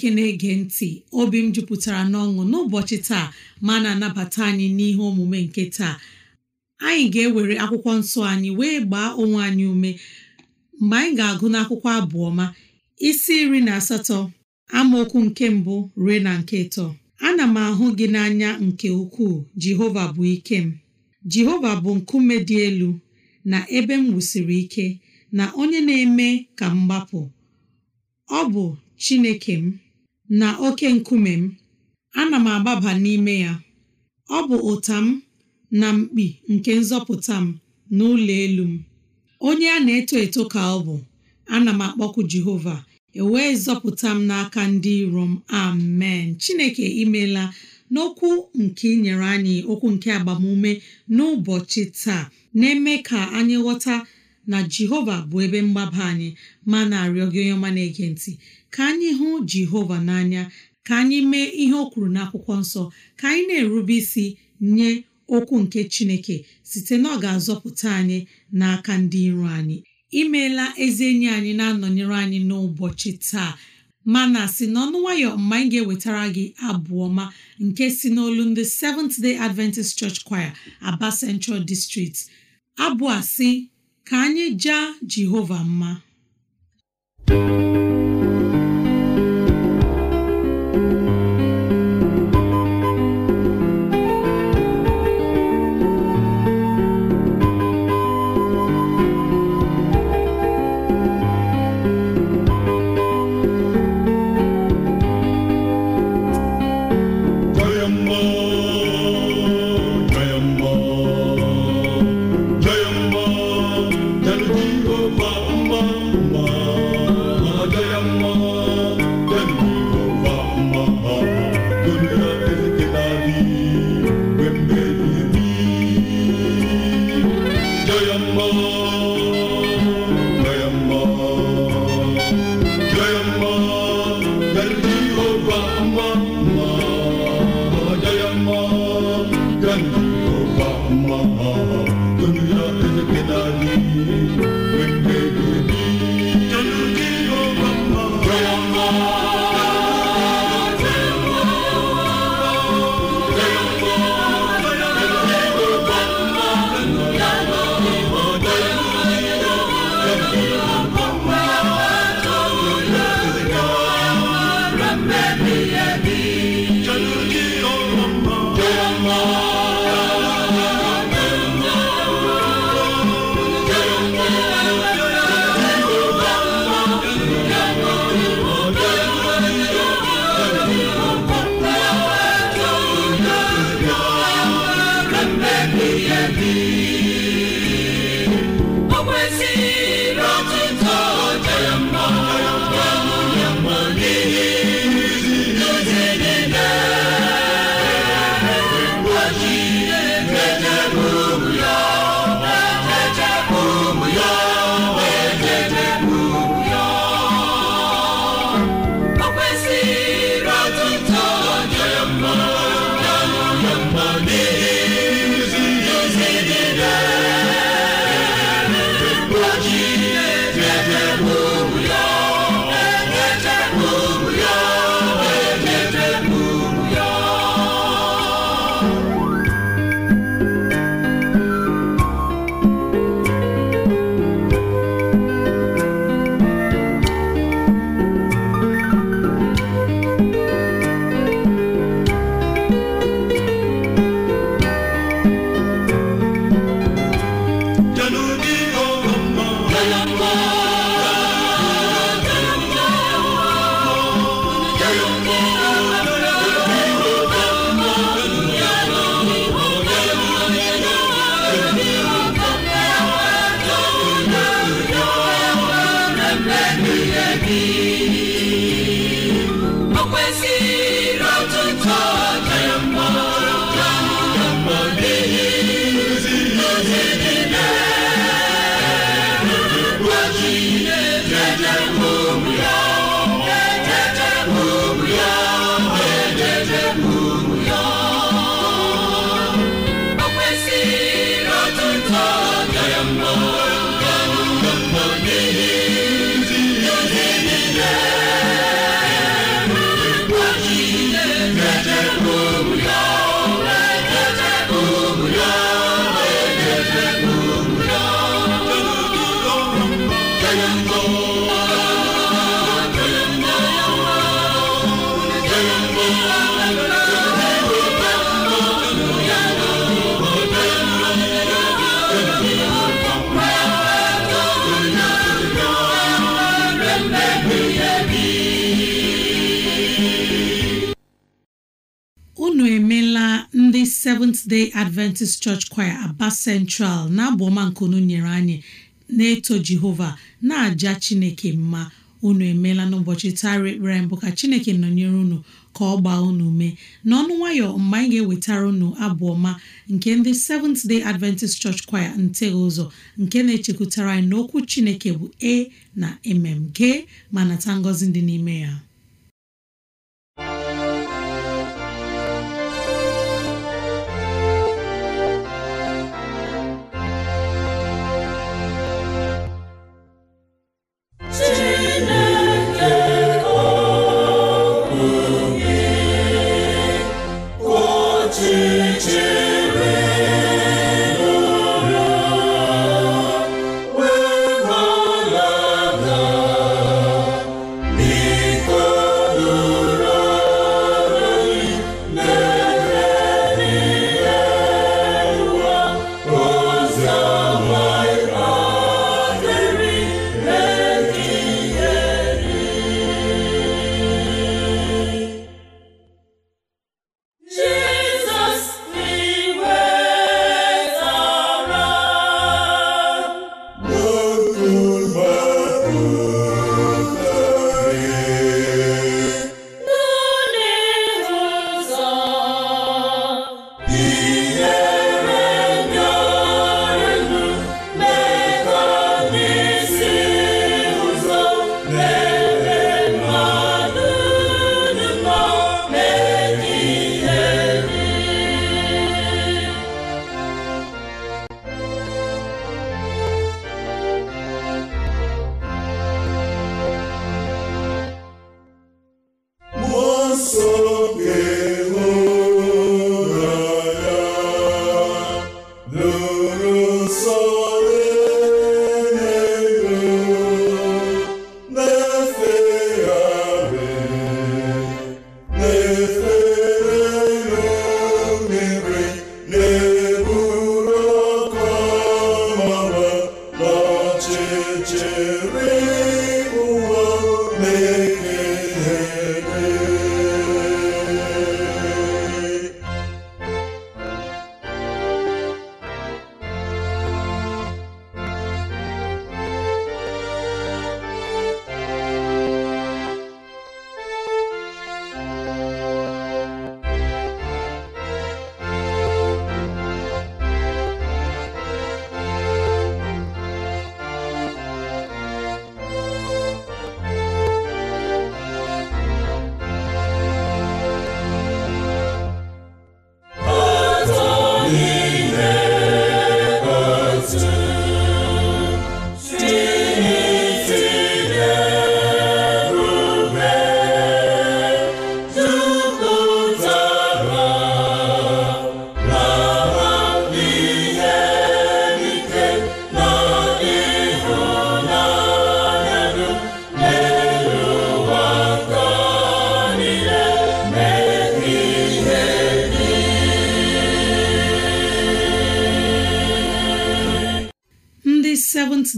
chineke na-ege ntị obi m jupụtara n'ọṅụ n'ụbọchị taa ma na-anabata anyị n'ihe omume nke taa anyị ga-ewere akwụkwọ nsọ anyị wee gbaa onwe anyị ume mgbe anyị ga-agụ n'akwụkwọ ma isi iri na asatọ amaokwu nke mbụ ruo na nke ịtọ ana m ahụ gị n'anya nke ukwuu jehova bụ ike m jehova bụ nkume dị elu na ebe m wusiri ike na onye na-eme ka m gbapụ ọ bụ chineke m na oke nkume m ana m agbaba n'ime ya ọ bụ ụta m na mkpi nke nzọpụta m na ụlọ elu m onye a na-eto eto ka ọ bụ ana m akpọkụ Jehova ewee zọpụta m n'aka ndị iro m amen Chineke imela n'okwu nke inyere anyị okwu nke agbamume n'ụbọchị taa na-eme ka anyị ghọta na jehova bụ ebe mgbaba anyị ma na-arịọ gị onye ọma na-ege ntị ka anyị hụ jehova n'anya ka anyị mee ihe o kwuru n'akwụkwọ nsọ ka anyị na-erube isi nye okwu nke chineke site na ọ ga-azọpụta anyị n'aka ndị iro anyị imeela ezi enyi anyị na-anọnyere anyị n'ụbọchị taa mana si n'ọnụ nwayọ mgbe anyị ga-ewetara gị abụ ọma nke si n'olu ndị Seventh Day Adventist Church Choir, Aba Central District abụ a ka anyị jaa Jehova mma mama. Seventh Day Adventist Church Choir Aba Central na abụọma nke unu nyere anyị na-eto Jehova na-aja Chineke mma unu emeela n'ụbọchị tara ekpere mbụ ka Chineke nọnyere unu ka ọ gbaa unu mee n'ọnụ nwayọ mgbe anyị ga-ewetara unu abụọma nke ndị Seventh Day Adventist Church Choir nteghị ụzọ nke na-echekwutara anyị na okwu Chineke bụ e na mm gee ma nata ngọzi dị n'ime ya Christmas.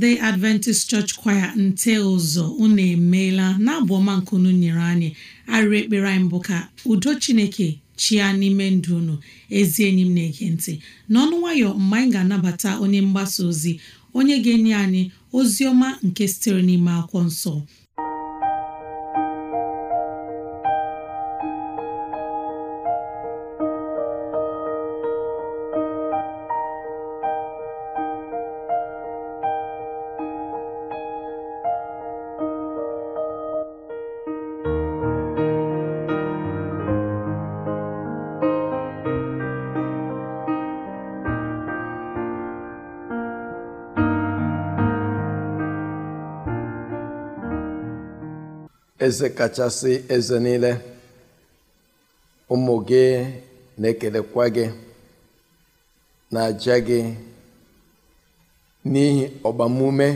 seventh adventist church choir nte ụzọ unu emeela na abụ ọma unu nyere anyị arịrị ekpere anyị mbụ ka udo chineke chia n'ime ndụ unu ezi enyi m na-ege ntị n'ọnụ nwayọ mgbe anyị ga-anabata onye mgbasa ozi onye ga-enye anyị ozi ọma nke sitere n'ime akwụkwọ nsọ eze kachasị eze niile ụmụ gị na-ekelekwa gị na-aja gị n'ihi ọgbamume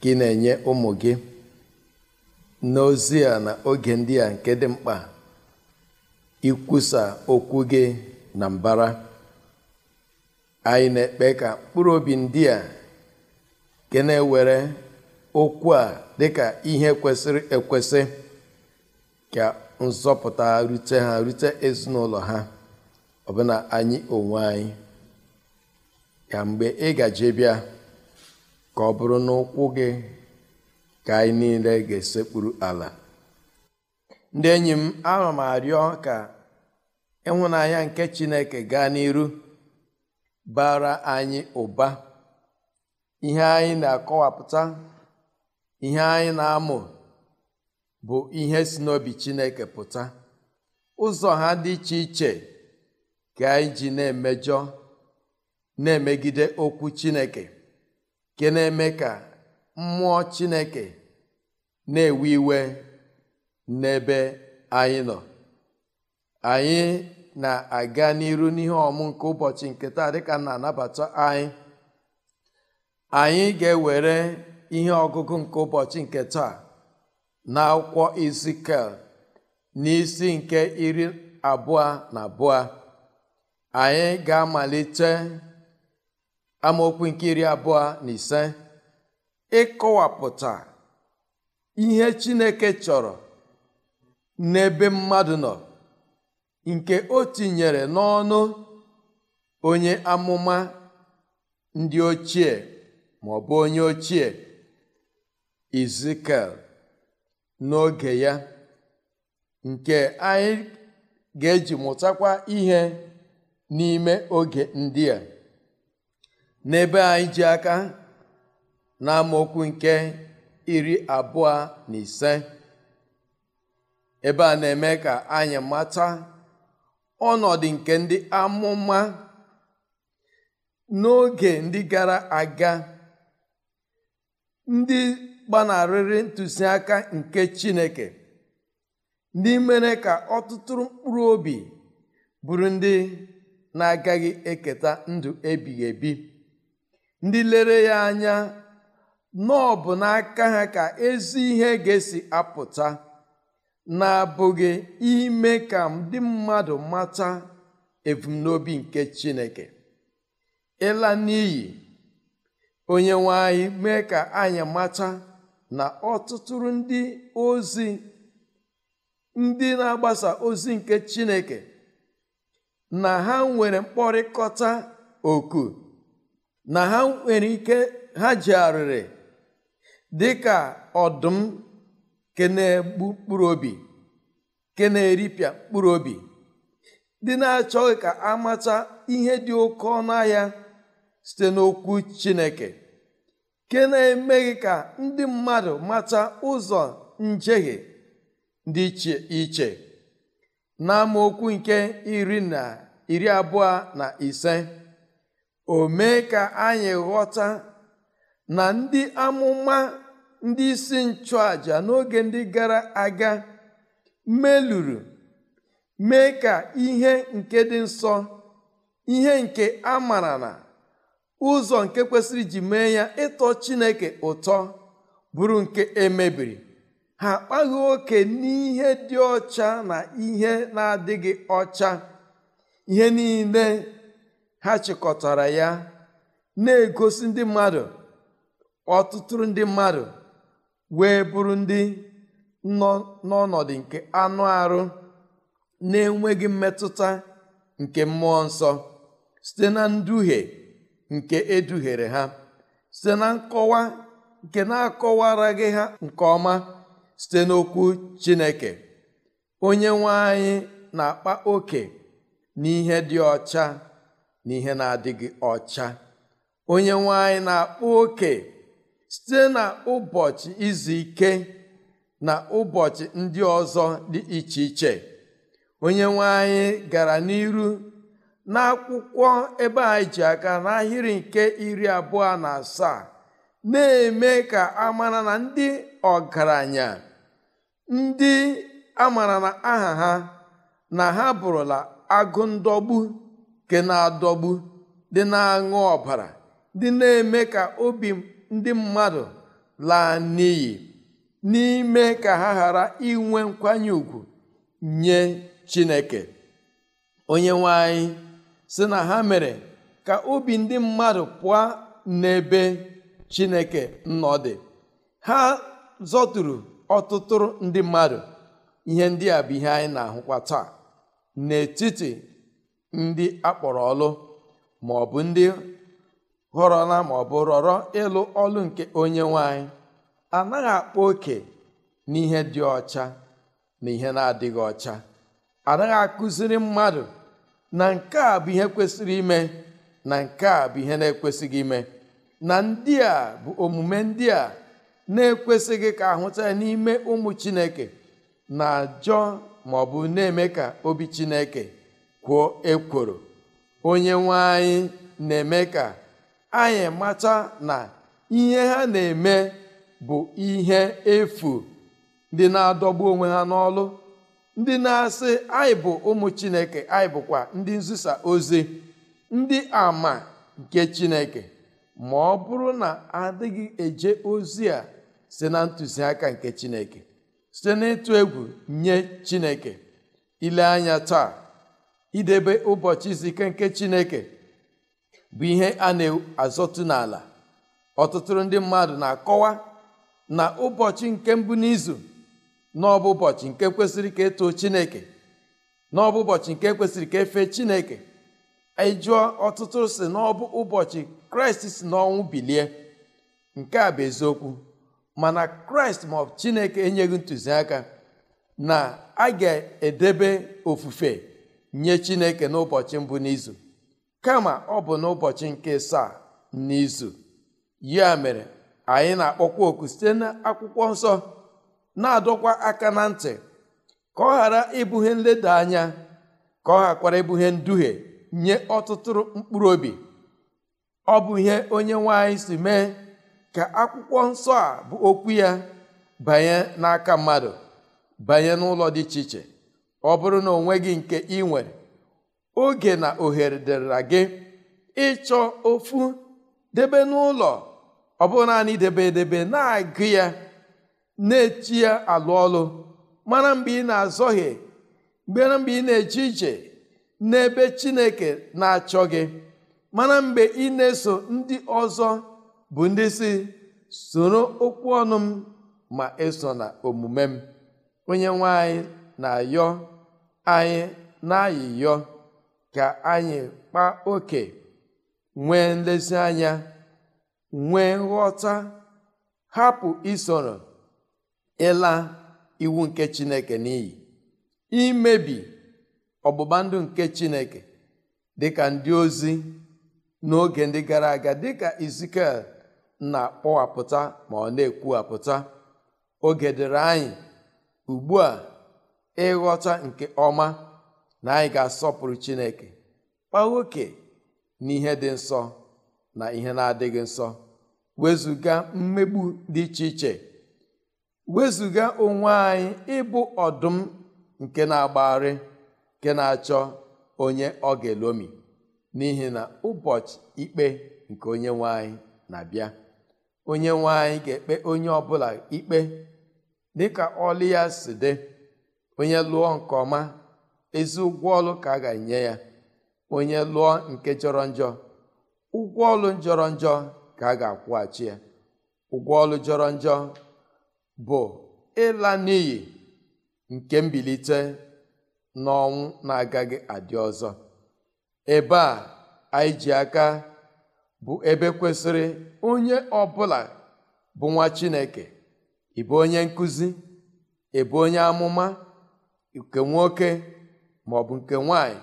gị na-enye ụmụ gị n'ozi a na oge ndị a nke dị mkpa ikwusa okwu gị na mbara anyị na-ekpe ka mkpụrụ obi ndị a nke na-ewere okwu a dịka ihe kwesịrị ekwesị ka nzọpụta rute ha rute ezinụlọ ha ọbụna anyị onwe anyị ka mgbe ị gaje bịa ka ọ bụrụ na ụkwụ gị ka anyị niile ga-esekpuru ala ndị enyi m ana m arịọ ka ịhụnanya nke Chineke gaa n'iru bara anyị ụba ihe anyị na-akọwapụta ihe anyị na-amụ bụ ihe si n'obi Chineke pụta ụzọ ha dị iche iche ka anyị ji na-emejọ na-emegide okwu Chineke nke na-eme ka mmụọ Chineke na-ewe iwe n'ebe anyị nọ anyị na-aga n'iru n'ihe ọmụ nke ụbọchị nke taa ka na-anabata anyị anyị ga-ewere ihe ọgụgụ nke ụbọchị nke taa na akwụkwọ Ezikiel n'isi nke iri abụọ na abụọ anyị ga-amalite amaokwu nke iri abụọ na ise ịkọwapụta ihe Chineke chọrọ n'ebe mmadụ nọ nke o tinyere n'ọnụ onye amụma ndị ochie ma ọ bụ onye ochie izikel n'oge ya nke anyị ga-eji mụtakwa ihe n'ime oge ndị a n'ebe anyị ji aka na nke iri abụọ na ise ebe a na-eme ka anyị mata ọnọdụ nke ndị amụma n'oge ndị gara aga ndị gbanarịrị ntụziaka nke chineke ndị mere ka ọtụtụ mkpụrụ obi bụrụ ndị na-agaghị eketa ndụ ebighị ebi ndị lere ya anya na bụ n'aka ha ka ezi ihe ga-esi apụta na-abụghị ime ka ndị mmadụ mata ebumnobi nke chineke ịla n'iyi onye nwe anyị mee ka anyị mata na ọtụtụrụ ndị ozi ndị na-agbasa ozi nke Chineke na ha nwere mkpọrịkọta oku na ha nwere ike ha ji arịrị dị ka ọdụm ke na-egbu mkpụrụ obi ke na-eripịa mkpụrụ obi ndị na-achọghị ka amata ihe dị oke ọnụ ahịa site n'okwu Chineke nke na-emeghị ka ndị mmadụ mata ụzọ njehie dị iche iche n'amaokwu nke iri na iri abụọ na ise o mee ka anyị ghọta na ndị amụma ndị isi nchụàjà n'oge ndị gara aga meluru mee ka ihe nke dị nsọ ihe nke a mara na ụzọ nke kwesịrị iji mee ya ịtọ chineke ụtọ bụrụ nke emebiri ha akpaghị oke n'ihe dị ọcha na ihe na-adịghị ọcha ihe niile ha chịkọtara ya na-egosi ndị mmadụ ọtụtụrụ ndị mmadụ wee bụrụ ndị nọ n'ọnọdụ nke anụ arụ na-enweghị mmetụta nke mmụọ nsọ site na nduhie nke eduhere ha site na nkọwa nke na-akọwaraghị ha nke ọma site n'okwu Chineke onye nwe anyị na-akpa oke n'ihe dị ọcha na ihe na-adịghị ọcha onye nwe anyị na-akpa oke site na ụbọchị izu ike na ụbọchị ndị ọzọ dị iche iche onye nwe gara n'iru n'akwụkwọ ebe anyị ji aka n'ahịrị nke iri abụọ na asaa na-eme ka amara na ndị ọgaranya ndị amara na aha ha na ha bụrụla agụ ndọgbu nke na-adọgbu dị na-aṅụ ọbara dị na-eme ka obi ndị mmadụ laa n'iyi n'ime ka ha ghara inwe nkwanye ùgwù nye Chineke onye nwe si na ha mere ka obi ndị mmadụ pụọ n'ebe chineke nọ dị ha zọturu ọtụtụ ndị mmadụ ihe ndị a bụ ihe anyị na-ahụkwa taa n'etiti ndị akpọrọ ọlụ ma ọ bụ ndị na ma ọ bụ rọrọ ịlụ ọlụ nke onye nwanyị anaghị akpa oke n'ihe dị ọcha na ihe na-adịghị ọcha anaghị akụziri mmadụ na nke a bụ ihe kwesịrị ime na nke a bụ ihe na-ekwesịghị ime na ndị a bụ omume ndị a na-ekwesịghị ka ahụta ya n'ime ụmụ chineke na-ajọ ma ọ bụ na-eme ka obi chineke kwuo ekworo onye nwe anyị na-eme ka anyị mata na ihe ha na-eme bụ ihe efu dị na-adọgbu onwe ha n'ọlụ ndị na-asị anyị bụ ụmụ chineke anyị bụkwa ndị nzisa ozi ndị ama nke chineke ma ọ bụrụ na adịghị eje ozi a sị na ntụziaka nke chineke site n'ịtụ egwu nye chineke ile anya taa idebe ụbọchị zike nke chineke bụ ihe a na-azọtụ n'ala ọtụtụ ndị mmadụ na-akọwa na ụbọchị nke mbụ n'izu n'ọbụ ụbọchị nke kwesịrị ka etoo chineke n'ọbụ ụbọchị nke kwesịrị ka efe chineke anyị e jụọ ọtụtụ si n'ọbụ ụbọchị kraịst si n'ọnwụ bilie nke a bụ eziokwu mana kraịst ọbụ chineke enyeghị ntụziaka na a ga-edebe ofufe nye chineke n'ụbọchị mbụ n'izu kama ọ bụ n'ụbọchị nke saa n'izu ya mere anyị na-akpọkwa oku site n'akwụkwọ nsọ na-adọkwa aka na ntị ka ọ ghara ibughe nleda anya ka ọ ghakwara ibughe nduhie nye ọtụtụ mkpụrụ obi ọ bụ ihe onye nwanyị si mee ka akwụkwọ nsọ a bụ okwu ya banye n'aka mmadụ banye n'ụlọ dị iche iche ọ bụrụ na onwe gị nke ị nwere oge na ohere dịrịra gị ịchọ ofu debe n'ụlọ ọ bụ naanị edebe na-agụ ya na-eti ya alụ ọlụ mara mgbe ị na-azọghị mara mgbe ị na-eje ije n'ebe chineke na-achọ gị mana mgbe ị na-eso ndị ọzọ bụ ndị si soro okwu ọnụ m ma eso na omume m onye nwe na-ayọ anyị na-ayịyọ ka anyị kpa oke nwee nlezianya nwee nghọta hapụ isoro ịla iwu nke chineke n'iyi imebi ọgbụgba ndụ nke chineke dịka ndị ozi n'oge ndị gara aga dịka izikel na-akpọwapụta ma ọ na-ekwuwapụta oge dịrị anyị ugbu a ịghọta nke ọma na anyị ga-asọpụrụ chineke kpa oke n'ihe dị nsọ na ihe na-adịghị nsọ wezụga mmegbu dị iche iche wezụga onwe anyị ịbụ ọdụm nke na-agbagharị nke na-achọ onye ọ ga-elomi n'ihi na ụbọchị ikpe nke onye nwanyị na-abịa onye nwanyị ga-ekpe onye ọbụla ikpe dịka ọlụ ya si dị onye lụọ nke ọma ezi ụgwọ ọlụ ka a ga-enye ya onye lụọ nke jọrọ njọ ụgwọ ọlụ jọrọ njọ ka a ga-akwụghachi ya ụgwọ ọlụ jọrọ njọ bụ ịla n'iyi nke mbilite n'ọnwụ na-agaghị adị ọzọ ebe a anyị ji aka bụ ebe kwesịrị onye ọbụla bụ nwa Chineke ịbụ onye nkụzi ịbụ onye amụma nke nwoke maọbụ nke nwanyị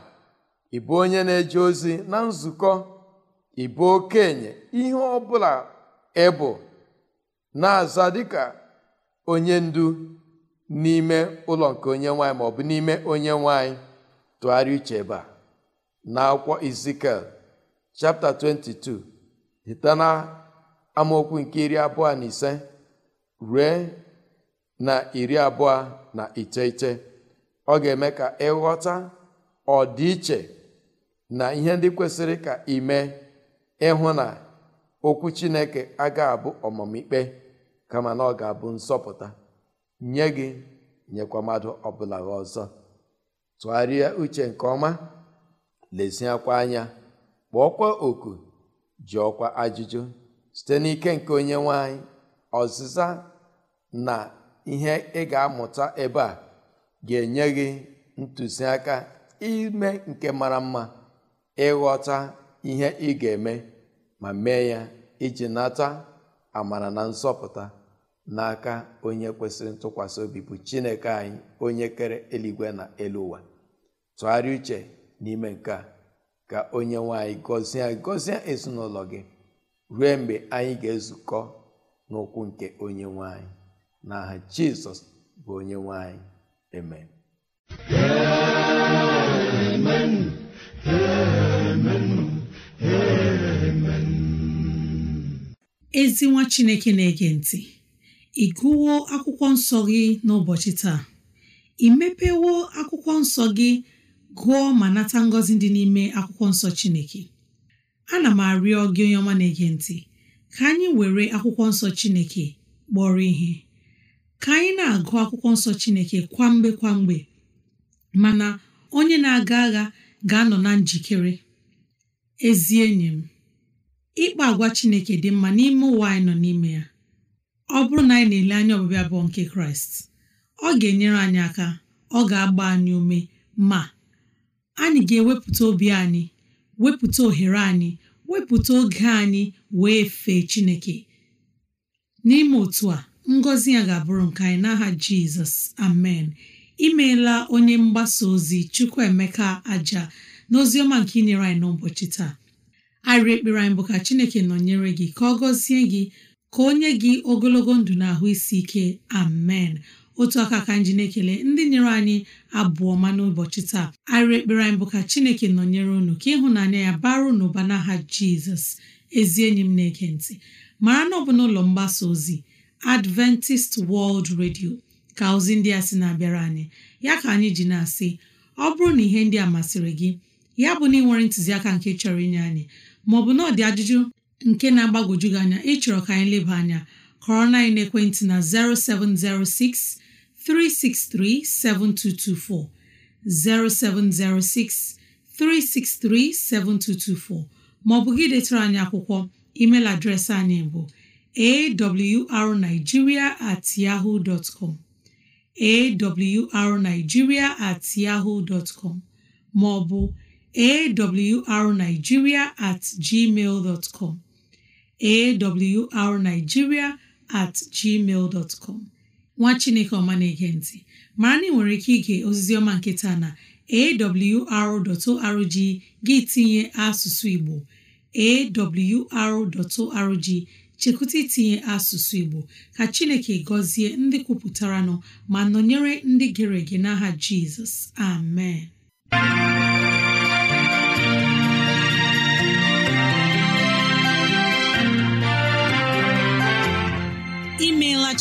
ịbụ onye na-eje ozi na nzukọ ịbụ okenye ihe ọbụla ịbụ na-aza dịka onye ndu n'ime ụlọ nke onye nwanyị maọbụ n'ime onye nwanyị tụgharịa uche ebe a na akwụkwọ izikel chapta 22 hita na amaokwu nke iri abụọ na ise ruo na iri abụọ na iteghete ọ ga-eme ka ịghọta ọdịiche na ihe ndị kwesịrị ka ime ịhụ na okwu Chineke aga abụ ọmụmikpe kama na ọ ga-abụ nsọpụta nye gị nyekwa mmadụ ọbụla gị ọzọ tụgharịa uche nke ọma leziakwa anya kpọọkwa oku ọkwa ajụjụ site n'ike nke onye nwanyị ọzịza na ihe ị ga-amụta ebe a ga-enye gị ntụziaka ime nke mara mma ịghọta ihe ị ga-eme ma mee ya iji nata amara na nzọpụta n'aka onye kwesịrị ntụkwasị obi bụ chineke anyị onye kere eluigwe na elu ụwa tụgharịa uche n'ime nke a ka onye nwanyị gọzie gọzie ezinụlọ gị ruo mgbe anyị ga-ezukọ n'ụkwụ nke onye nwanyị n'aha jizọs bụ onye nwanyị amen ezi nwa chineke na-ege ntị ị gụwo akwụkwọ nsọ gị n'ụbọchị taa ị mepewo akwụkwọ nsọ gị gụọ ma nata ngọzi dị n'ime akwụkwọ nsọ chineke ana m arịọ gị onye ọma na-ege ntị ka anyị were akwụkwọ nsọ chineke kpọrọ ihe ka anyị na-agụ akwụkwọ nsọ chineke kwamgbe kwamgbe mana onye na-aga agha ga-anọ na njikere ezi enyi m ịkpa agwa Chineke dị mma n'ime ụwa anyị nọ n'ime ya ọ bụrụ na anyị na-ele anya ọbịbịa bụọ nke Kraịst ọ ga-enyere anyị aka ọ ga-agba anyị ume ma anyị ga-ewepụta obi anyị wepụta ohere anyị wepụta oge anyị wee fee Chineke n'ime otu a ngọzi ya ga-abụrụ nke anyị n'aha Jizọs amen imeela onye mgbasa ozi Chukwuemeka aja n'oziọma nke inyere anyị n'ụbọchị taa arịrị ekpere anyị bụ ka chineke nọnyere gị ka ọ gọzie gị ka onye gị ogologo ndụ na ahụ isi ike amen otu aka ka nji na-ekele ndị nyere anyị abụọ ma n'ụbọchị taa arịrị ekpere anyị bụ ka chineke nọnyere unu ka ịhụnanya ya bara unu ụba n'aha jizọs ezi enyi m na-ege ntị mara na ọ bụ n'ụlọ mgbasa ozi adventist world radio ka ozi ndị a sị na-abịara anyị ya ka anyị ji na-asị ọ bụrụ na ihe ndị a masịrị gị ya bụ na ị nwere ntụziaka nke chọrọ inye anyị maọbụ na ọ dị ajụjụ nke na-agbagwoju gị anya ịchọrọ ka anyị leba anya corona na ekwentị na 0706 363 7224 0706 363 7224 maọbụ gị detara anyị akwụkwọ email adreesị anyị bụ awrnigeria at yahoo dot com awrnigeria at yahoo dot com maọbụ awrnigeria at gmail com at com nwa chineke ọma na-ege mara na nwere ike ige ozizi ọma nke taa na awr.org gị tinye asụsụ igbo awr.org chekwụta itinye asụsụ igbo ka chineke gọzie ndị kwupụtara nọ ma nọnyere ndị gere ege n'aha jizọs amen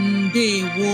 ndewo